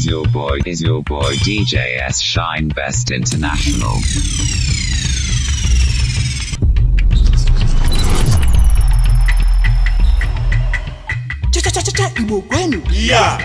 is your boy, is your boy DJ S Shine Best International. Yeah.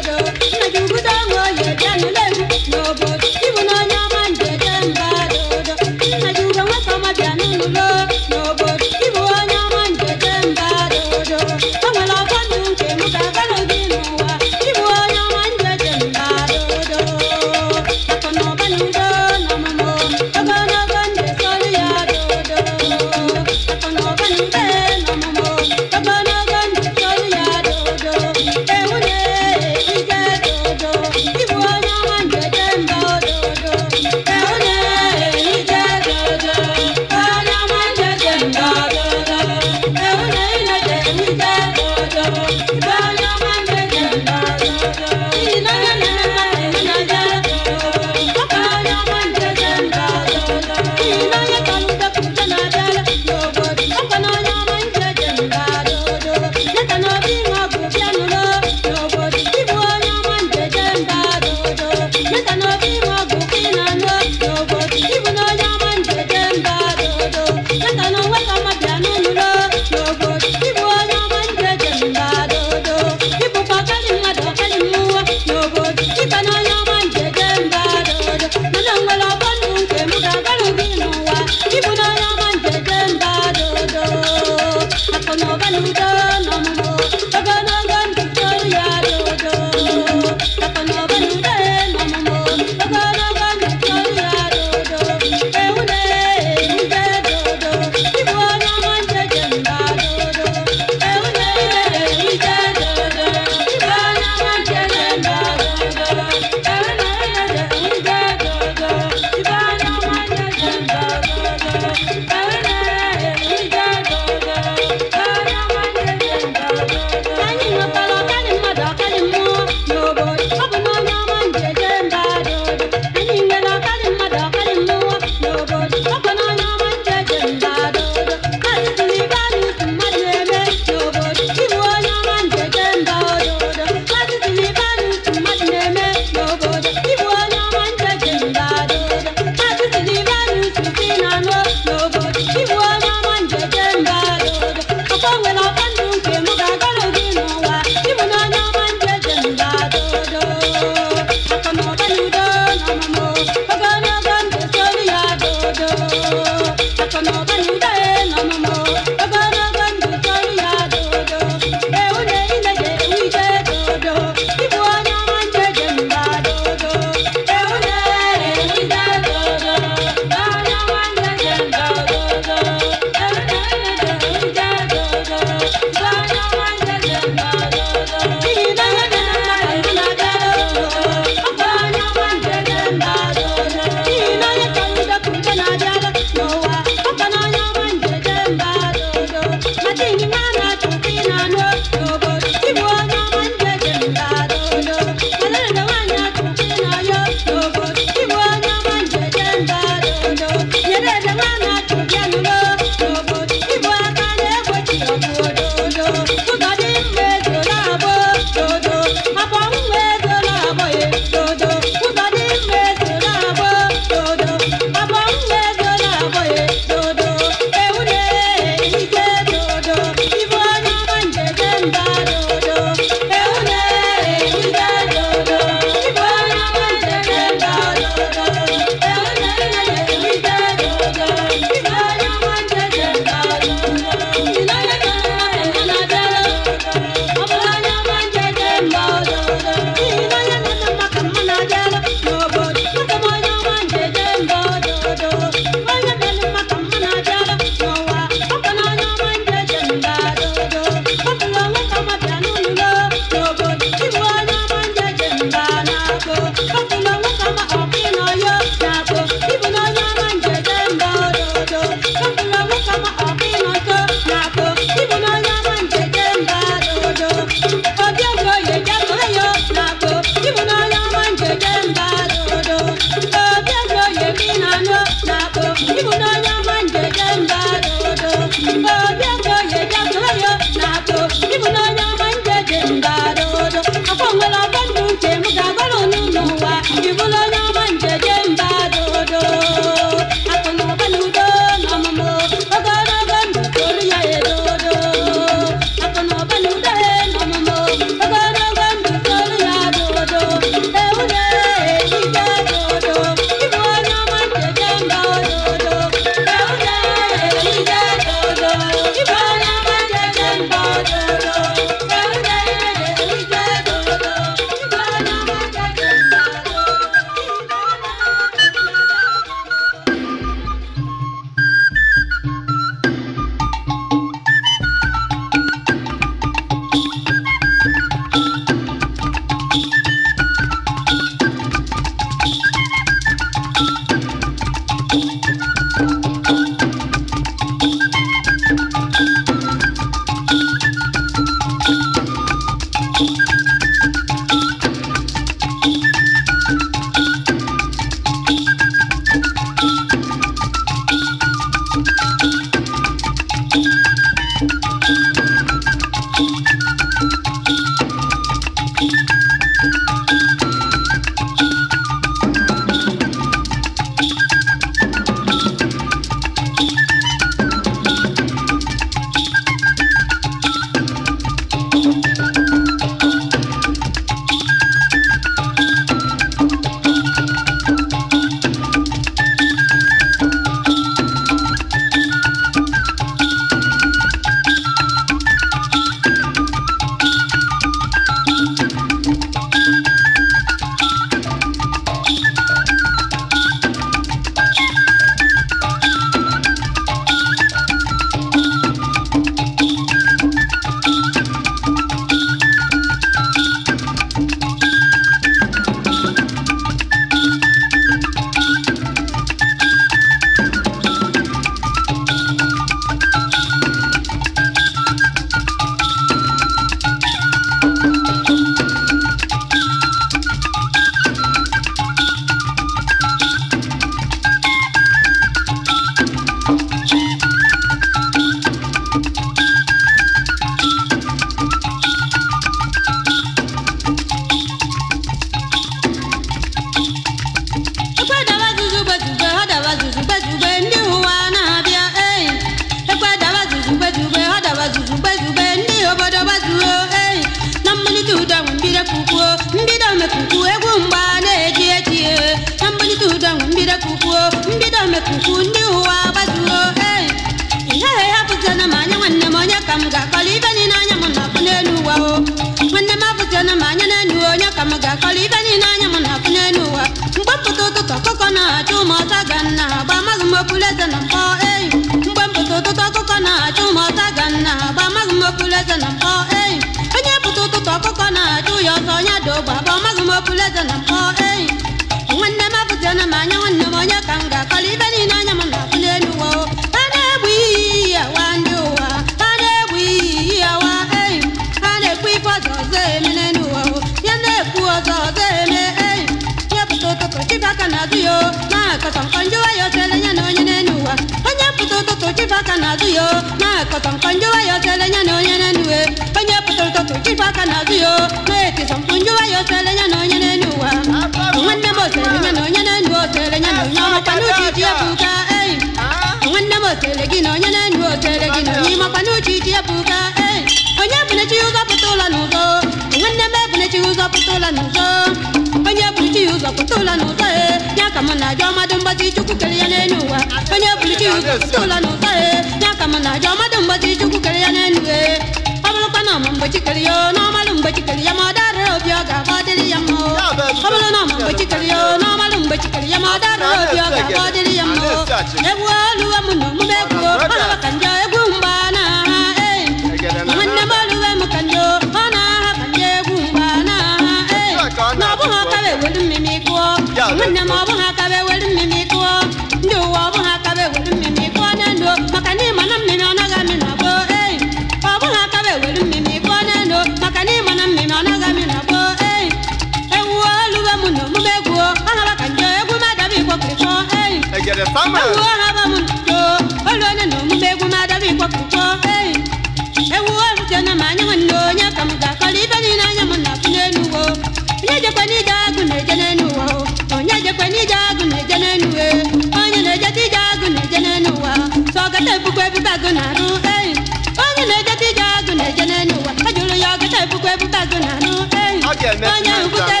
agụ na anụ enyi onye ngwute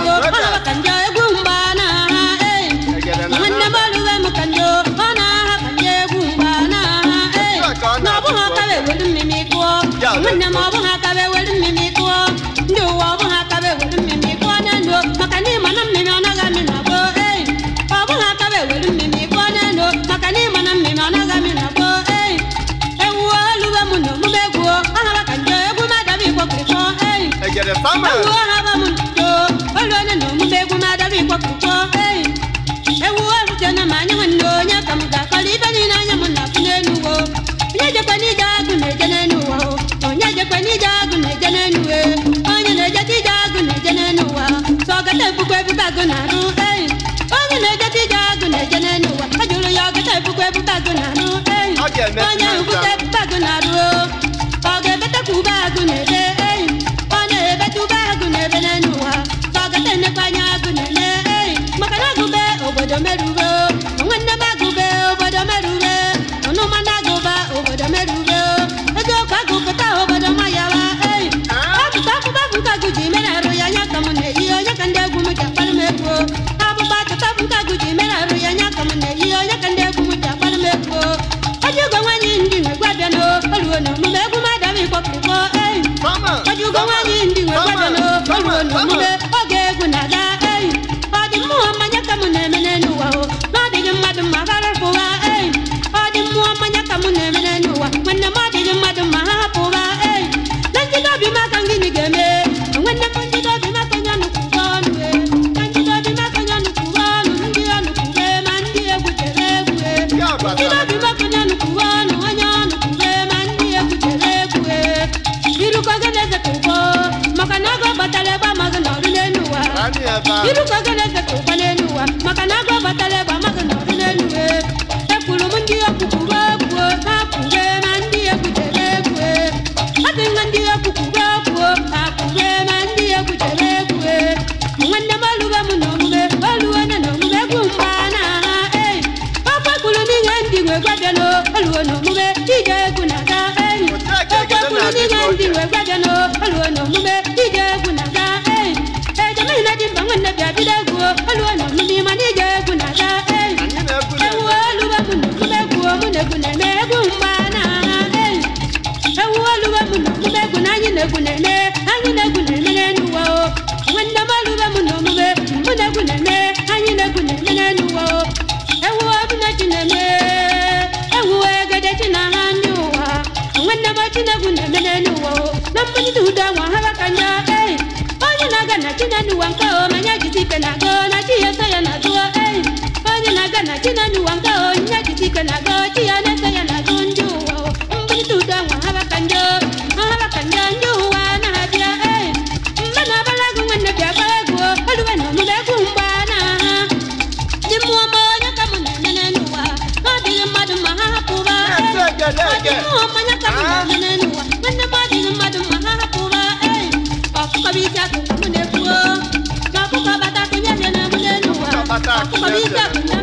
out. ebukwa na-arụ onye agụ na-eje n'elu ụwa jụrụ ya ahụ munene anyị na-egwu na-emene amiga.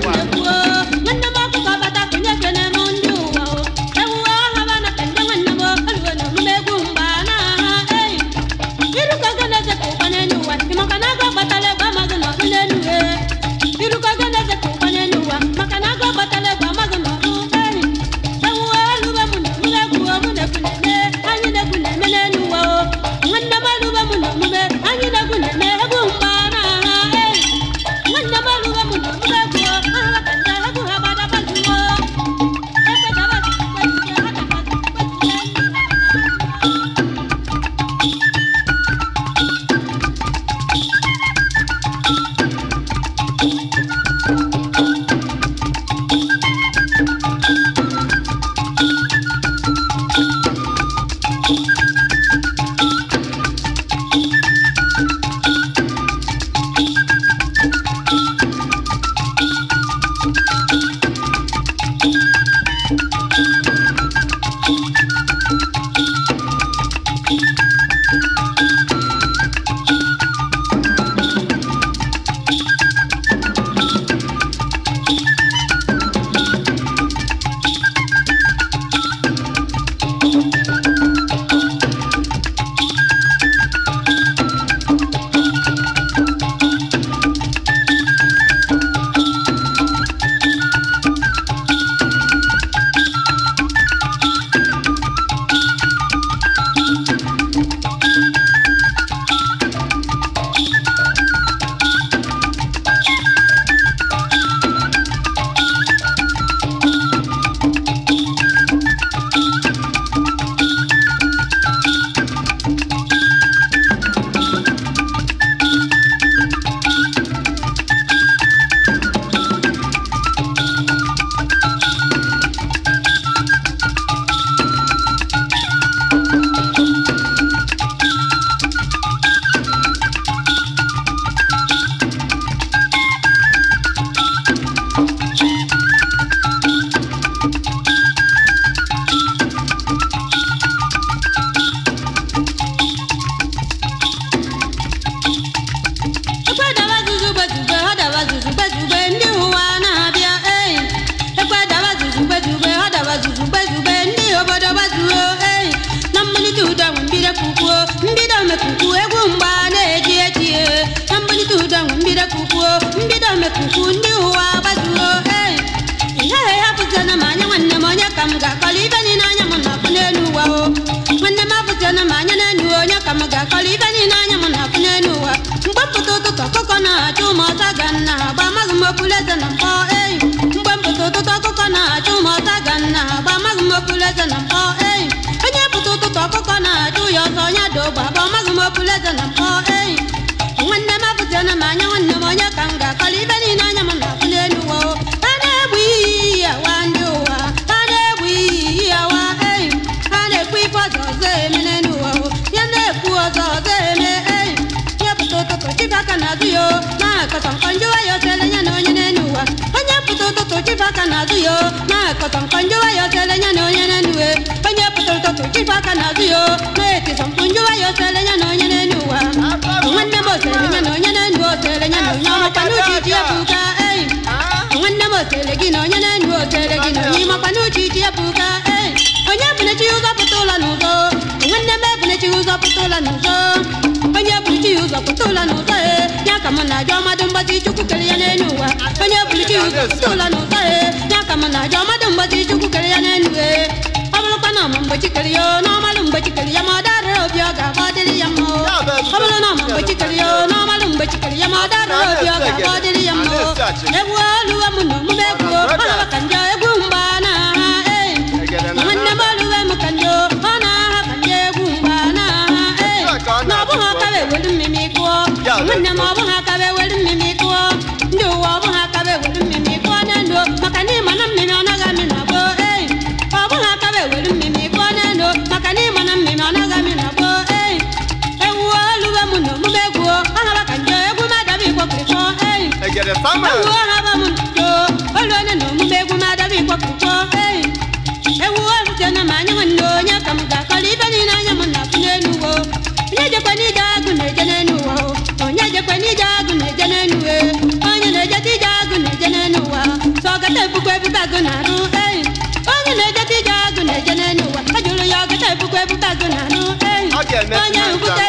妈呀！不带。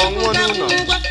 想我呢？